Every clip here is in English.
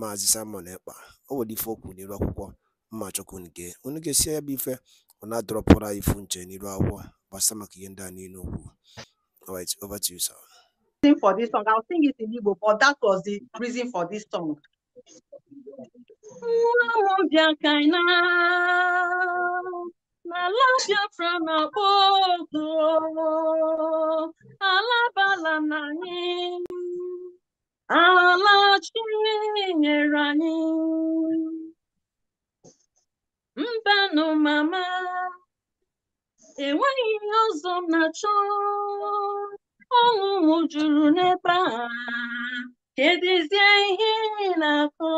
Maazị Simon Ekpa o nwere ife o n'iru akwụkwọ mma nke onye ga-esi ya bụ ife ọ na-adọrọpụrụ anyị ifu nche n'iru akwụkwọ gbasa maka ihe ndị a niile okwu over to alachinyere anyị mbanụ mama enweghị ihe ọzọ m na-achọ ọṅụ m juru n'ebe na-akọ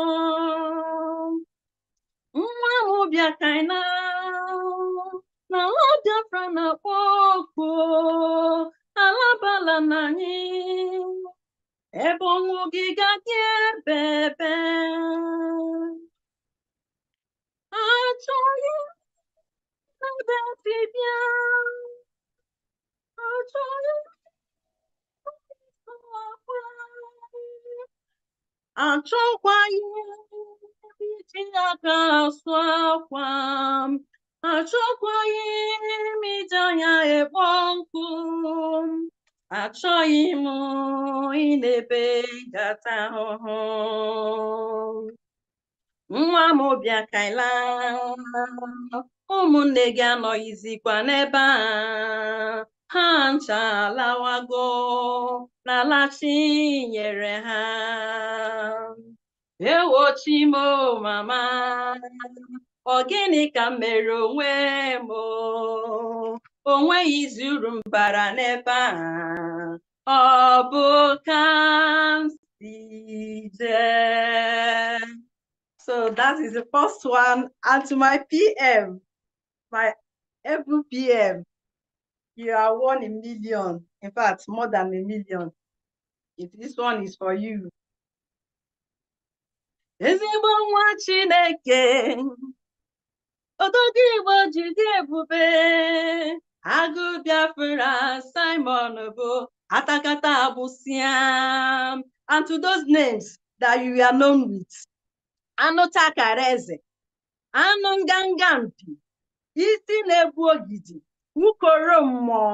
nwa na-akpọ oku alabala Ebon ogiga bebe. Achoye nade bibia. Achoye Achọkwaghị iji aka asụ akwa m, achọkwaghị m iji anya ekpo nkụ m. achọghị m ịnebe gata ahụhụ nwa m bịa kaila ụmụnne gị anọghịzikwa n'ebe a ha ncha lawago n'ala chi nyere ha ewo chimo mama ọ gịnị ka m mere onwe m o nweghị izu uru m bara n'ebe a ọ bụ ka m So that is the first one. And to my PM, my every PM, you are one in million. In fact, more than a million. If this one is for you. Ezigbo nwa Chineke, ododo Igbo ji dị ebube. agụ biafra simon bụ atakata abụsiam and to those names that you are known with eze anụ nganga mpi isi na-ebu ogidi ukoro mmụọ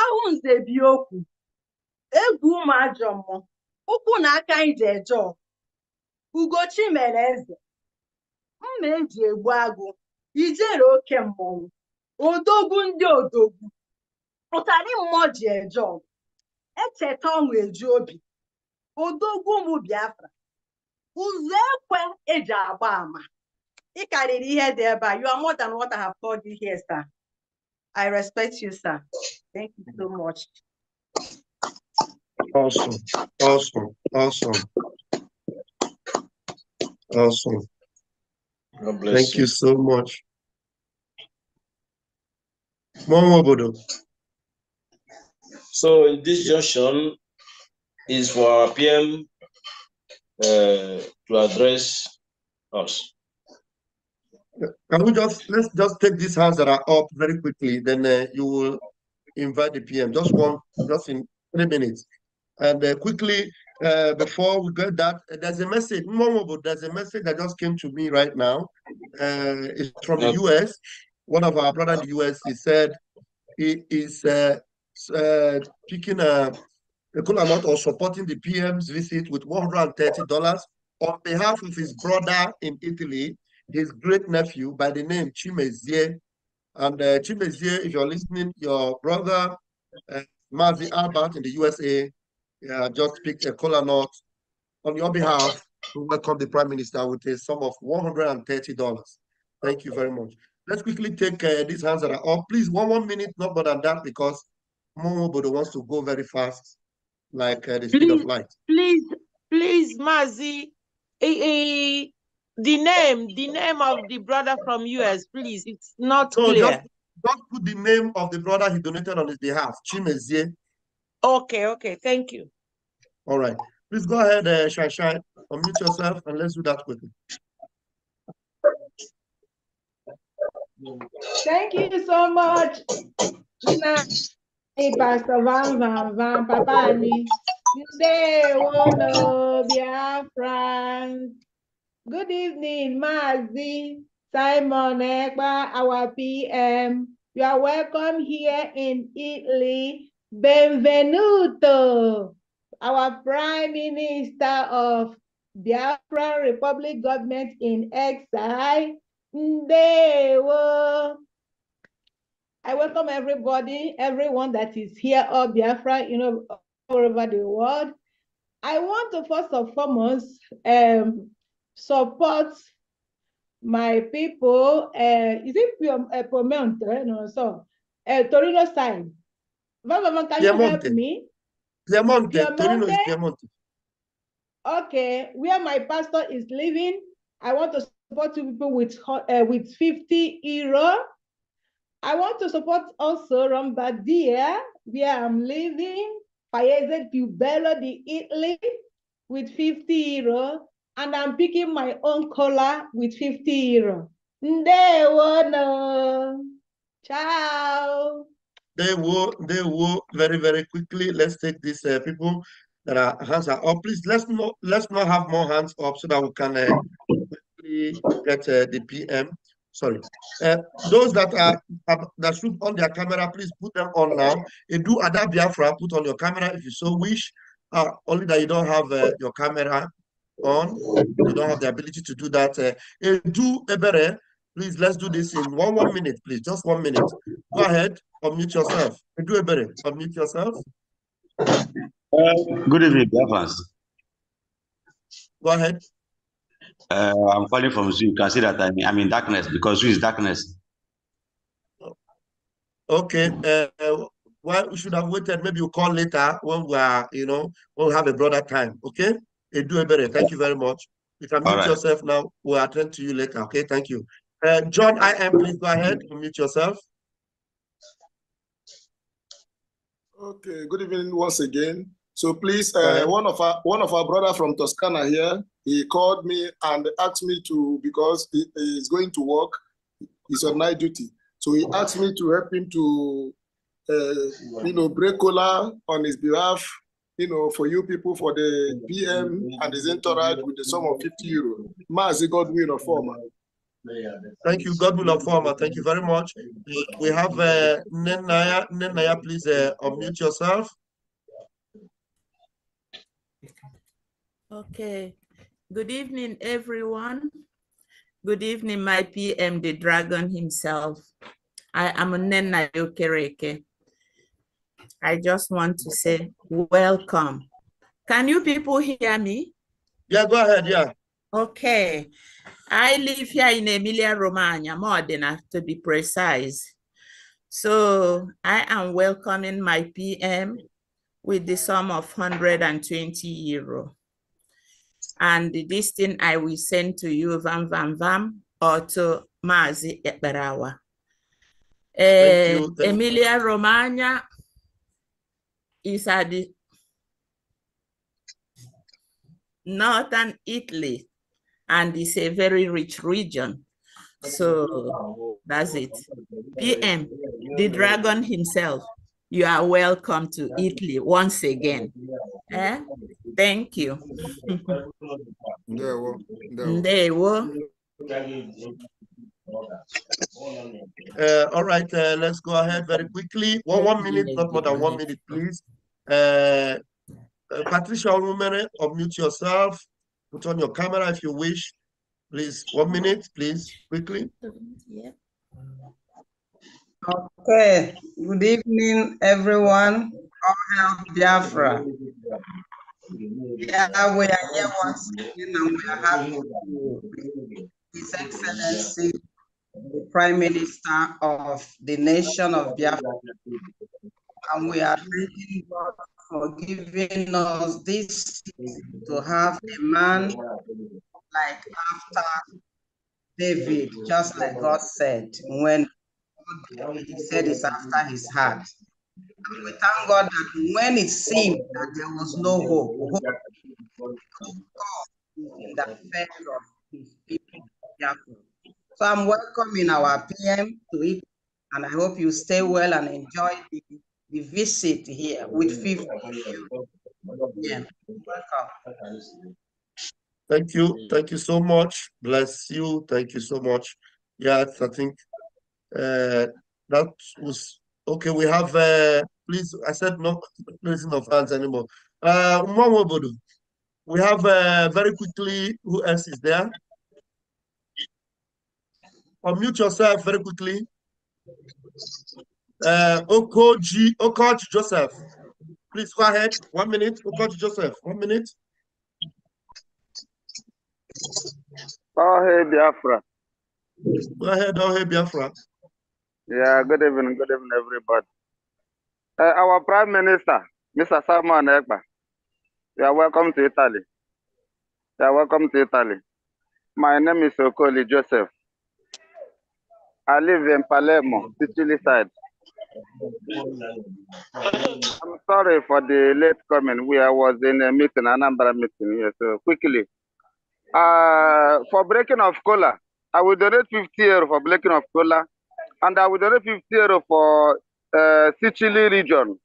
ahụ nze okwu egwu ụmụ ajọ mmụọ ụkwụ na aka ije ji ugochi mere eze mma eji egbu agụ ijere oke mmọnwụ odogwu ndị odogwu pụtara moji ji eje ọgụ echeta ọṅụ eji obi odogwu ụmụ biafra ụzọ ekwe eji agba ị karịrị here dị ebe you are more than what I have called you here sir I respect you sir thank you so much awesome awesome awesome awesome God bless thank you, you so much Mụọ So this junction is for our PM uh, to address us. Can we just let's just take these hands that are up very quickly, then uh, you will invite the PM. Just one, just in three minutes, and uh, quickly uh, before we get that, uh, there's a message. Momobo, there's a message that just came to me right now. Uh, it's from the US one of our brother in the US, he said he is uh, uh, picking a, a cool amount or supporting the PM's visit with $130 on behalf of his brother in Italy, his great nephew by the name Chimezie. And uh, Chimezie, if you're listening, your brother, uh, Mazi Albert in the USA, uh, just picked a cola note on your behalf to welcome the Prime Minister with a sum of $130. Thank you very much. Let's quickly take uh, these hands that are up. Please, one one minute, not more than that, because Momobodo wants to go very fast, like uh, the speed of light. Please, please, Mazi, eh, eh, the name, the name of the brother from US, please. It's not so clear. Just, just put the name of the brother he donated on his behalf, Chimezie. Okay, okay, thank you. All right. Please go ahead, uh, Shai Shai, unmute yourself, and let's do that quickly. Thank you so much. Pastor Van Van Van Papa Ni. Today, Wolo Biafran. Good evening, Mazi, Simon Ekba, our PM. You are welcome here in Italy. Benvenuto, our Prime Minister of Biafra Republic Government in Exile. Ndewo. I welcome everybody, everyone that is here, or Biafra, you know, all over the world. I want to first and foremost um, support my people. Uh, is it Piemonte? Uh, eh, no, so uh, Torino side. Mama, can Piemonte. you help me? Piemonte. Piemonte. Torino is Piemonte. Okay, where my pastor is living, I want to support you people with uh, with 50 euro I want to support also Rombardia, where I'm living, Paese Pubello di Italy with 50 euro, and I'm picking my own color with 50 euro. Ndewono. Ciao. They will, they will very, very quickly. Let's take these uh, people that are hands are up. Please let's not let's not have more hands up so that we can uh, quickly get uh, the PM sorry. Uh, those that are that should on their camera, please put them on now. And do Ada Biafra, put on your camera if you so wish. Uh, only that you don't have uh, your camera on, you don't have the ability to do that. Uh, and do Ebere, please let's do this in one one minute, please, just one minute. Go ahead, unmute yourself. And do Ebere, unmute yourself. Uh, good evening, Biafrans. Go ahead. Uh, I'm falling from zoo. You can see that I'm, I'm in darkness because zoo is darkness. Okay. Uh, well, we should have waited. Maybe you we'll call later when we are, you know, we'll have a broader time. Okay. Edu Ebere, thank you very much. You can mute right. yourself now. We'll attend to you later. Okay. Thank you. Uh, John, I am. Please go ahead. Mute yourself. Okay. Good evening once again. So please, uh, uh-huh. one of our one of our brother from Toscana here, he called me and asked me to because he is going to work, he's on night duty. So he uh-huh. asked me to help him to, uh, you know, break cola on his behalf, you know, for you people for the PM and his entourage with the sum of 50 euro. Mazi God will inform. Thank you, God will inform. Thank you very much. We have uh, Nenaya. Nenaya, please uh, unmute yourself. Okay. Good evening, everyone. Good evening, my PM, the dragon himself. I am Nena Yokereke. I just want to say welcome. Can you people hear me? Yeah, go ahead, yeah. Okay. I live here in Emilia Romagna, more than enough to be precise. So I am welcoming my PM with the sum of 120 euro and this thing I will send to you, Vam Vam Vam, or to Mazi Ekberawa. Uh, eh, Emilia Romagna is at the northern Italy, and it's a very rich region. So that's it. PM, the dragon himself you are welcome to Italy once again. Eh? Thank you. Ndewo. Ndewo. Uh, all right, uh, let's go ahead very quickly. One, one minute, not more than one minute, please. Uh, uh Patricia Olumere, unmute yourself. Put on your camera if you wish. Please, one minute, please, quickly. Yeah. Okay, good evening, everyone. All hail Biafra. Yeah, we are here once again and we are happy to His Excellency, the Prime Minister of the nation of Biafra. And we are thanking God for giving us this to have a man like after David, just like God said, when he said it's after his heart. And we thank God that when it seemed that there was no hope, hope in the face of his people. So I'm welcoming our PM to it, and I hope you stay well and enjoy the, the visit here with 50 Yeah, welcome. Thank you. Thank you so much. Bless you. Thank you so much. Yes, I think uh, that was okay. We have uh, please. I said no raising of hands anymore. Uh, Mwamobodo, we have uh, very quickly. Who else is there? Unmute yourself very quickly. Uh, Okoji, Okoji Joseph, please go ahead. One minute, Okoji Joseph. One minute. Oh, hey, Biafra. Go ahead, oh, hey, Biafra. Yeah, good evening, good evening, everybody. Uh, our Prime Minister, Mr. Salman Ekba, you are welcome to Italy. You are welcome to Italy. My name is Okoli Joseph. I live in Palermo, Sicily side. I'm sorry for the late coming. We I was in a meeting, a number meeting here. So quickly, uh, for breaking of cola, I will donate 50 euro for breaking of cola and I will donate 50 euro for uh, Sicily region.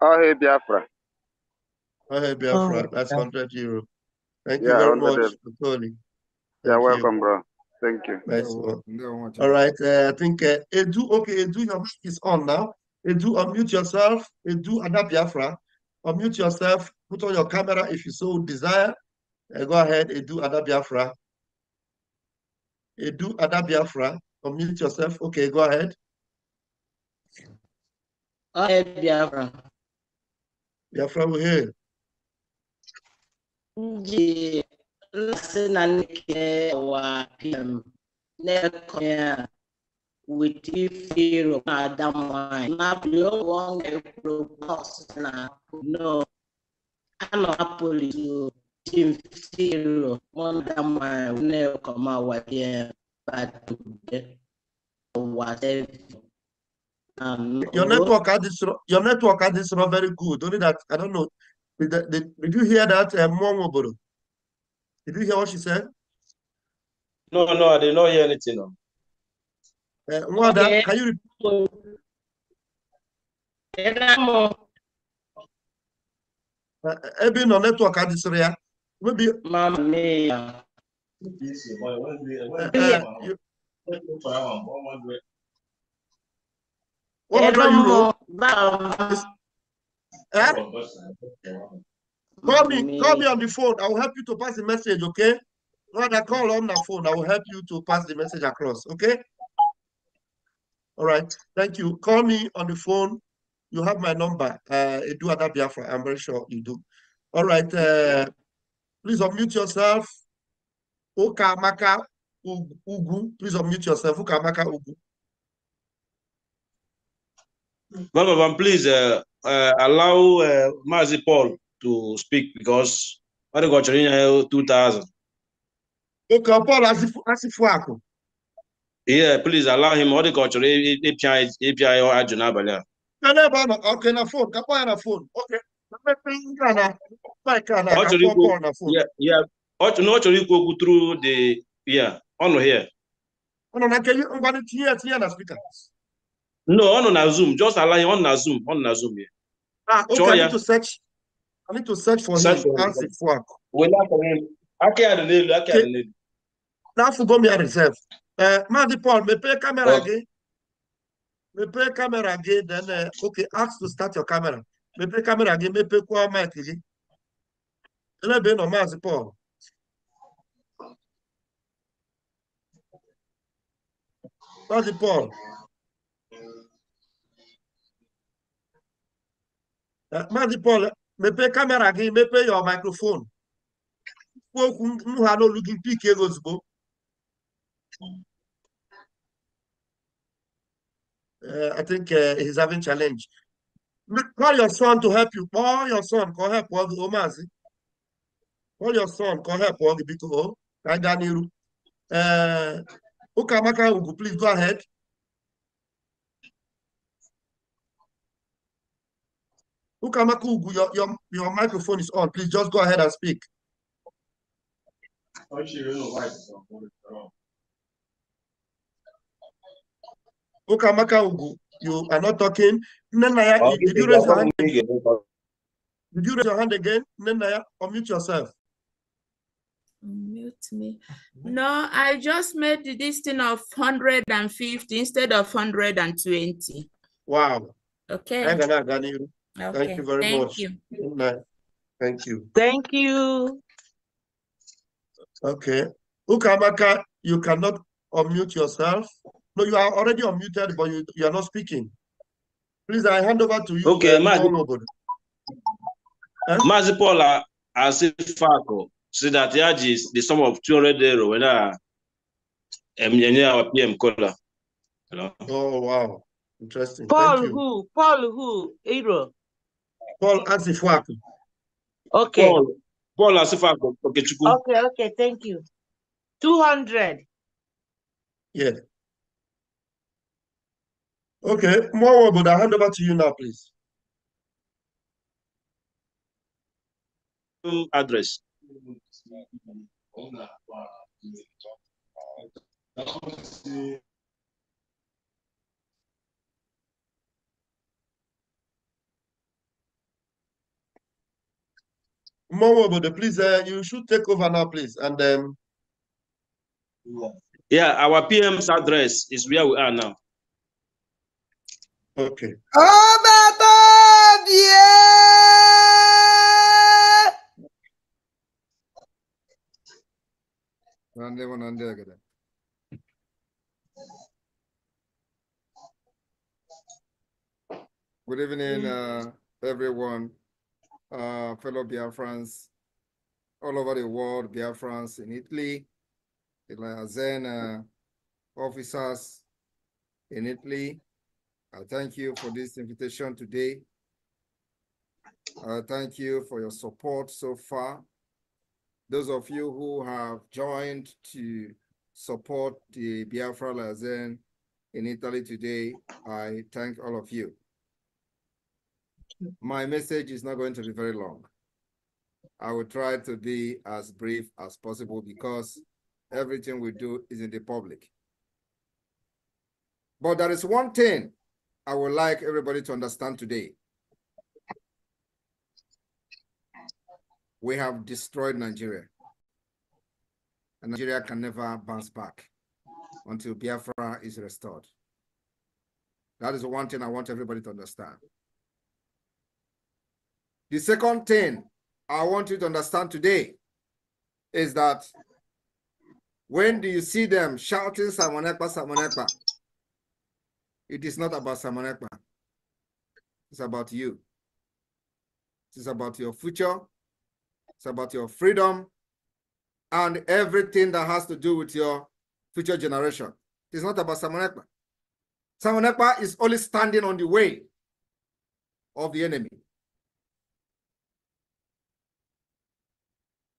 Oh, hey, Biafra. Oh, hey, Biafra. Oh, That's yeah. 100 euro. Thank yeah, you very much for calling. You're welcome, bro. Thank you. Nice one. No, All right. Uh, I think uh, Edu, okay, Edu, your mic is on now. Edu, unmute yourself. Edu, Anna Biafra. Unmute yourself. Put on your camera if you so desire. Uh, go ahead, Edu, Anna Biafra. Edu, Anna Biafra unmute yourself. Okay, go ahead. Go ahead, Biafra. Biafra, we're here. The lesson and our PM never with Pharaoh Adam wine. Now, below one proposed now, no, I'm not police. Tim Pharaoh, one Adam wine will never come out with him but today was um, your network at this your network at this not very good. Only that I don't know. Did, did, did you hear that, uh, Mwangoboro? Did you hear what she said? No, no, I did not hear anything. No. Uh, Mwada, okay. can you repeat? Uh, no network at this area. Maybe. Mama. Eh? Call me, call me on the phone. I will help you to pass the message, okay? Rather call on the phone. I will help you to pass the message across, okay? All right. Thank you. Call me on the phone. You have my number. Uh, do other Biafra. I'm very sure you do. All right. Uh, please unmute yourself. Okamaka Ugu. Please unmute yourself. Okamaka Ugu. Governor, please uh, uh, allow uh, Mazi Paul to speak because what got uh, 2000. Okay, Paul, as if as you Yeah, please allow him all the culture API API or Ajunabala. No, no, no, okay, na phone, kapa Okay. Yeah, yeah, na ọ chọrọ ikwu okwu tru the ya On here ọnụ na nke ngwanụ tinye ya tinye na spika no on na zoom just ala on ọnụ na zoom On na zoom here. ah okay i need to search i need to search for search him and seek for wele Okay, n'elu aka ya me, n'elu reserve. Uh, eh, dị Paul, me m camera reserve maazị paul mepee kamera gị mepee kamera then eh, okay ask to start your camera Me camera mepee kamera gị mepekwa mic gị elebe nọ maazị paul mande Paulo. É, me Madipolo, câmera aqui, me mepee o microfone. kwuo não há n'olu gị mpike gị ozugbo I think uh, he's having challenge. Call your son to help you. Call your son call ọ help ọ gị o Call your son call ọ help ọ gị biko o ka é é tá anyị Okamaka Ugu, please go ahead. Ukamaku Ugu, your, your, your microphone is on. Please just go ahead and speak. Ukamaka Ugu, you are not talking. Nenaya, did you raise your hand again? Did you raise your hand again? Nenaya, unmute yourself. Mute me. No, I just made this thing of 150 instead of 120. Wow. Okay. Thank you very Thank much. You. Thank you. Thank you. Okay. Ukamaka, you cannot unmute yourself. No, you are already unmuted, but you, you are not speaking. Please, I hand over to you. Okay, Mazipola, Paula, I Fako. See that age is the sum of 200 euro when I am um, PM caller. Oh, wow. Interesting. Paul who? Paul who? Euro. Paul Asifuaku. Okay. Paul, Paul Asifuaku. Okay, okay, okay. Thank you. 200. Yeah. Okay, more But I hand over to you now, please. Address. Mom, please, uh, you should take over now, please. And um, yeah, our PM's address is where we are now. Okay. Oh, God! yeah. Good evening, mm. uh, everyone, uh, fellow Biafrans all over the world, Biafrans in Italy, the Lazen uh, officers in Italy. I thank you for this invitation today. I thank you for your support so far those of you who have joined to support the Biafra Lazen in Italy today, I thank all of you. My message is not going to be very long. I will try to be as brief as possible because everything we do is in the public. But there is one thing I would like everybody to understand today. we have destroyed Nigeria. And Nigeria can never bounce back until Biafra is restored. That is one thing I want everybody to understand. The second thing I want you to understand today is that when do you see them shouting Samonekpa, Samonekpa? It is not about Samonekpa. It's about you. It is about your future. It's about your freedom and everything that has to do with your future generation. It's not about Samonekpa. Samonekpa is only standing on the way of the enemy.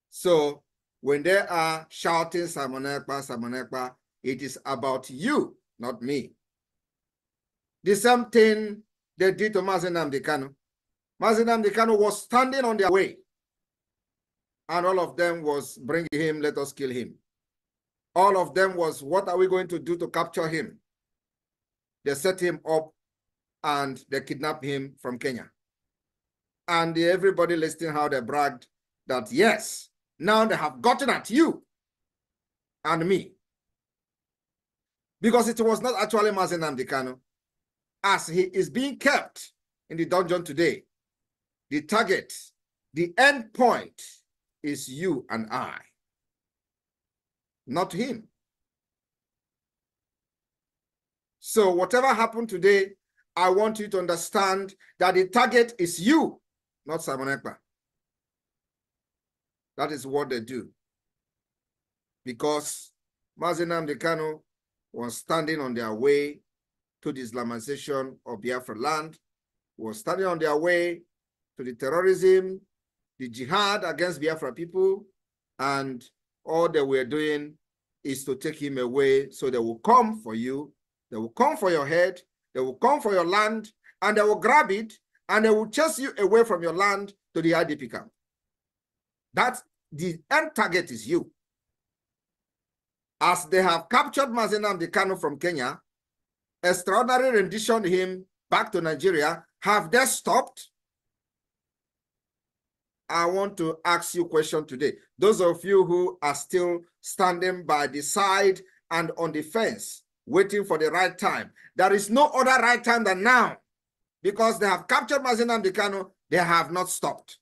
So when they are shouting Samonekpa, Samonekpa, it is about you, not me. The same thing they did to Mazenam Dekano. Mazenam Dekano was standing on their way and all of them was bring him, let us kill him. All of them was, what are we going to do to capture him? They set him up and they kidnapped him from Kenya. And everybody listening how they bragged that, yes, now they have gotten at you and me. Because it was not actually Mazen Amdekano. As he is being kept in the dungeon today, the target, the end point is you and I, not him. So whatever happened today, I want you to understand that the target is you, not Simon Ekpa. That is what they do. Because Mazinam Dekano was standing on their way to the Islamization of Biafra land, was standing on their way to the terrorism the jihad against Biafra people, and all they were doing is to take him away. So they will come for you, they will come for your head, they will come for your land, and they will grab it, and they will chase you away from your land to the IDP camp. That's the end target is you. As they have captured Mazenam Dekano from Kenya, extraordinary renditioned him back to Nigeria. Have they stopped? I want to ask you a question today. Those of you who are still standing by the side and on the fence, waiting for the right time. There is no other right time than now because they have captured and Dikano. They have not stopped.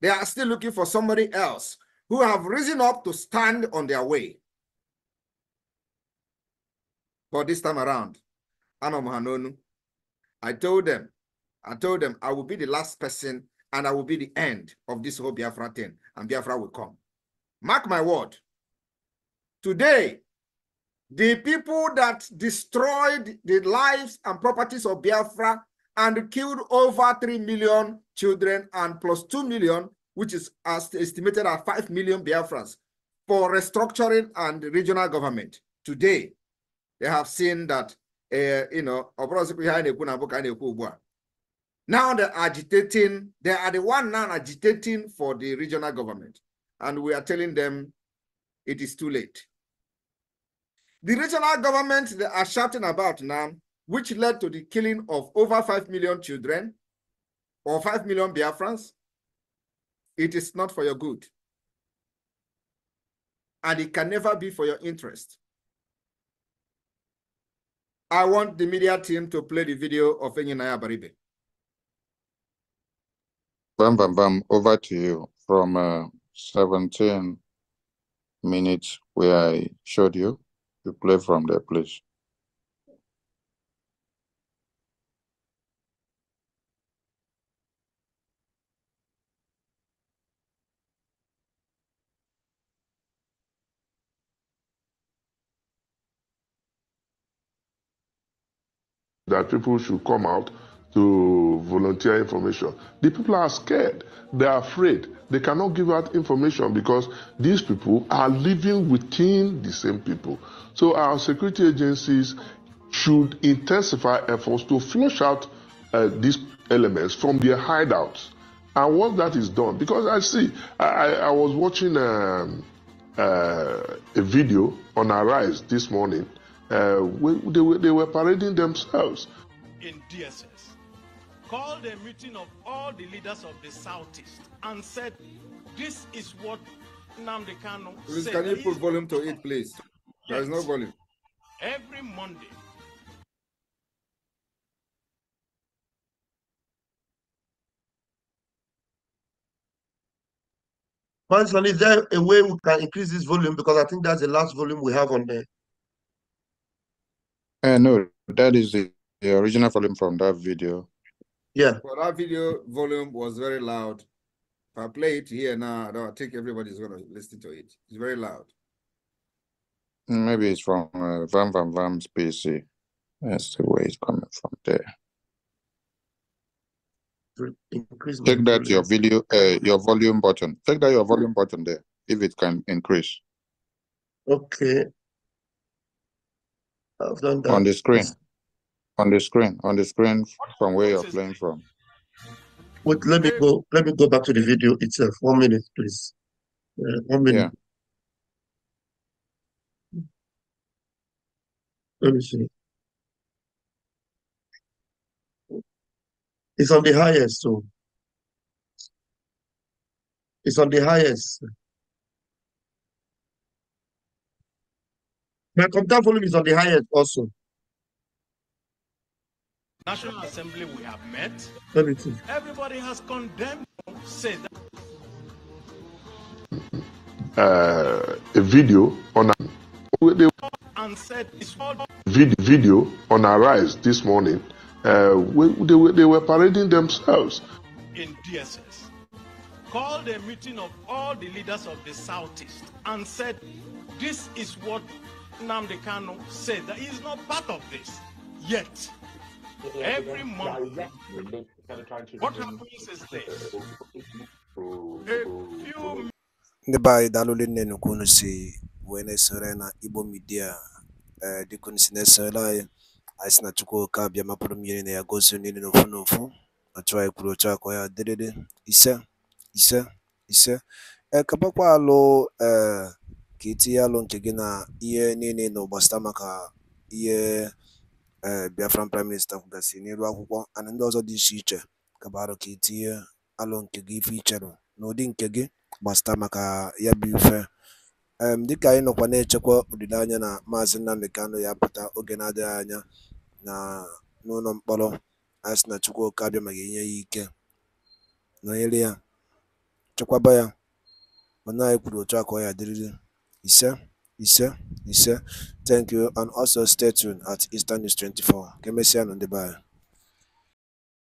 They are still looking for somebody else who have risen up to stand on their way. But this time around, I told them, I told them I will be the last person and I will be the end of this whole Biafra thing, and Biafra will come. Mark my word. Today, the people that destroyed the lives and properties of Biafra and killed over 3 million children and plus 2 million, which is estimated at 5 million Biafrans, for restructuring and regional government. Today, they have seen that, uh, you know, now they're agitating, they are the one now agitating for the regional government. And we are telling them it is too late. The regional government they are shouting about now, which led to the killing of over 5 million children or 5 million Biafrans, it is not for your good. And it can never be for your interest. I want the media team to play the video of Enyi Baribe. Bam, bam, bam. Over to you from uh, 17 minutes where I showed you. You play from there, please. That people should come out to volunteer information. The people are scared. They are afraid. They cannot give out information because these people are living within the same people. So our security agencies should intensify efforts to flush out uh, these elements from their hideouts. And once that is done, because I see, I, I was watching um, uh, a video on Arise this morning. Uh, they, were, they were parading themselves in DSS called a meeting of all the leaders of the Southeast and said, This is what Namde Kano said. can you put volume to it, please? There is no volume. Every Monday, Manson, is there a way we can increase this volume? Because I think that's the last volume we have on there. Uh, no, that is the, the original volume from that video. Yeah. But our video volume was very loud. If I play it here now, I don't think everybody's going to listen to it. It's very loud. Mm, maybe it's from uh, Vam Vam Vam's PC. That's the way it's coming from there. Increase Check that your video, uh, your volume button. Check that your volume button there, if it can increase. Okay. I've done that. On the screen on the screen, on the screen from where you're playing from. Wait, let me go. Let me go back to the video itself. One minute, please. Uh, one minute. Yeah. Let me see. It's on the highest, so it's on the highest. My computer volume is on the highest also. National Assembly, we have met. Everybody has condemned said uh, a video on a, and said vid, video on our rise this morning. Uh, they, they were parading themselves in DSS. Called a meeting of all the leaders of the Southeast and said, This is what Namdekano said that he is not part of this yet. every month. What happens is this. ndị be anyị daalụ nne nnukwu si wee na-esore na igbo midia eh, dịka si na-esorela anyị na chukwu oke abịa mmiri na ya gozie niile n'ofu n'ofu ọchụ anyị kwuru ya dịrịrị ise ise ise e, alụ eh, ka e alụ nke gị na ihe ee eh, Biafran Praịm Minista kwugasịrị n'elu akwụkwọ and ndị ọzọ dị iche iche kabarụ ka itinye e alụ nke gị ife icherụ n'ụdị nke gị gbasata maka ya bụ ife dịka anyị nọkwa na-echekwa olileanya na maazị Nnamdi kanụ ya pụta oge na-adịghị anya na n'ụlọ mkpọrọ anyị sị na chukwu abịa ma ga-enye ya ike nọnyere ya chekwaba ya mana anyị kwuru otu a ka ọ ya dịrịrị ise Ise, Ise. Thank you. And also stay tuned at Eastern News 24. on the Nundebayo.